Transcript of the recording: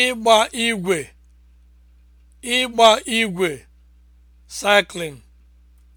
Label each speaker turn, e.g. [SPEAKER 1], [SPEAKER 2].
[SPEAKER 1] ịgba igwe ịgba igwe cycling